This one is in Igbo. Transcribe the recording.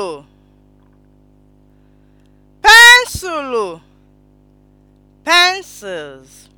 pensụlụ pensụlụ pencils